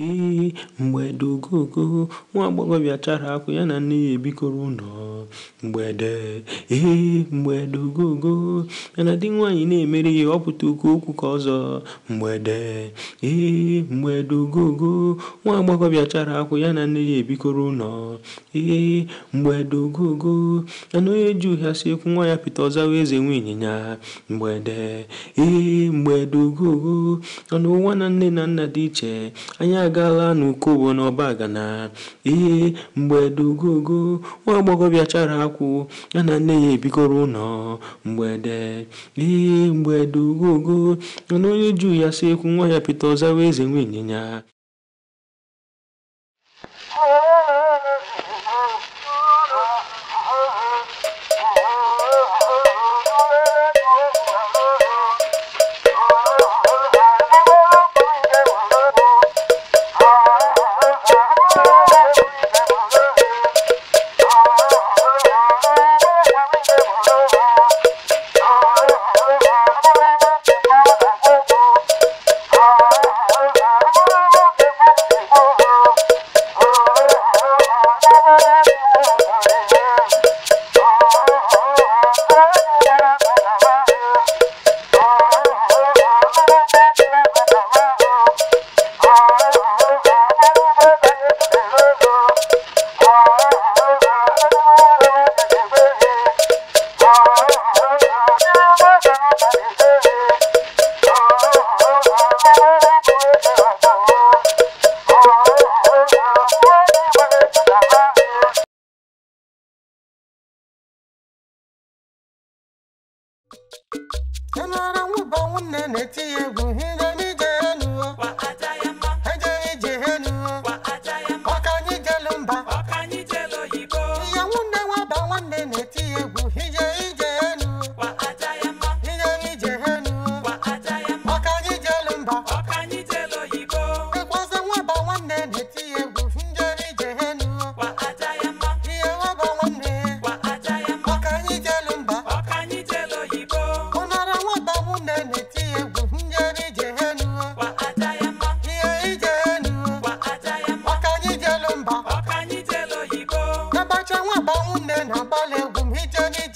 Ee, mgbede ogogo, nwa agbọghọbịa chara akwụ ya na nne ya ebikọrọ ụlọ. Mgbede, ee, mgbede ogogo, na di nwaanyị na-emere ya ọpụta oke okwu ka ọzọ. Mgbede, ee, mgbede ogogo, nwa agbọghọbịa chara akwụ ya na nne ya ebikọrọ ụlọ. Ee, mgbede ogogo, na onye ji ụgha si ekwu nwa ya pịta ọzawa eze nwe ịnyịnya. Mgbede, ee, mgbede ogogo, na na nne na nna dị iche, anya agala n'ukobo n'ọbagana ihe mgbede ugogo nwa agbọghọ bịachara akwụ ya na nne ya ebikọrọ ụlọ mgbede ihe mgbede ugogo na onye juu ya si ekwu nwa ya pete ọzawa eze nwe ịnyịnya one and a Hit your